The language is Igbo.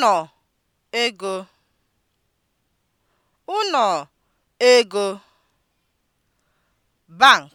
ụnọ ego ụnọ ego bank